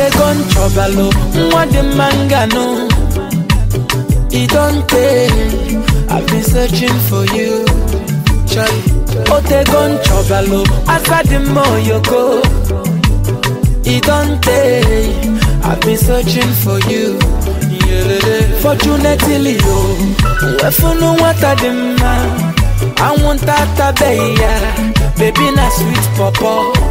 dey gun trouble o oh. nwa manga no. It don't take. i've been searching for you chai o oh, dey gun trouble o asa dị mma It don't take. i've been searching for you fortunately o nwefunu nwata dị I want atabeghị ya baby na sweet pọpọ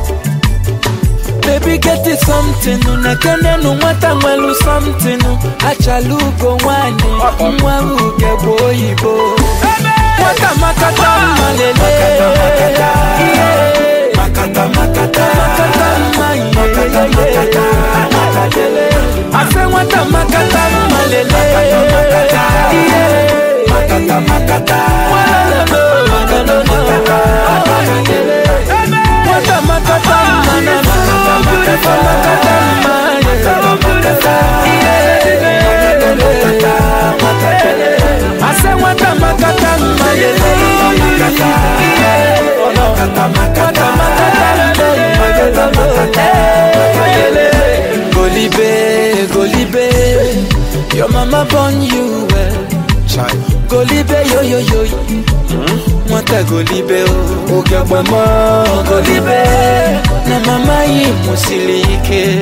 Baby, get it something. Nakanya no mwata mwelu something. Achalugo wane. Mwa uge boyibo. Hey! Your mama born you well. Child. Go libe yo yo yo. Hmm? Mwata go libe o. Oga mama go libe. Na mama yi musilike.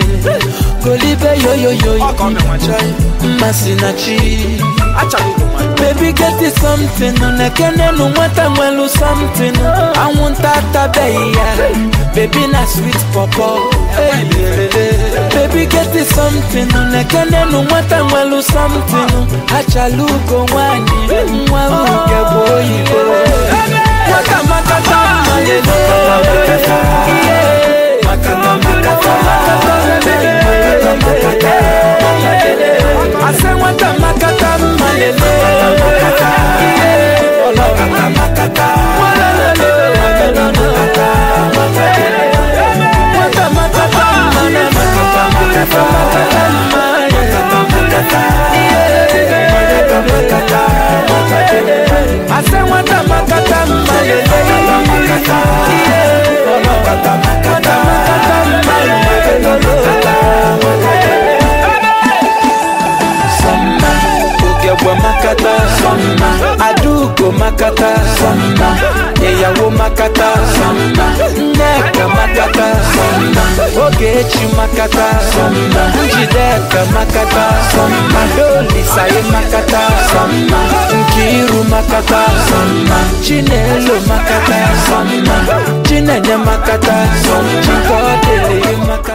Go libe yo yo yo. Akome mwachai. Masinachi. Achali kumai. Baby get it something unekene numwata mwelu something I want that baby Baby na sweet papa hey, hey, hey, something lekene numwatangwalu something hachalugo ngwani mwawu matata samba eyawo makata samba nneka makata samba ogechi makata samba njideka makata samba dolisaye makata samba nkiru makata samba chinelo makata samba chinenye makata samba chikọdele makata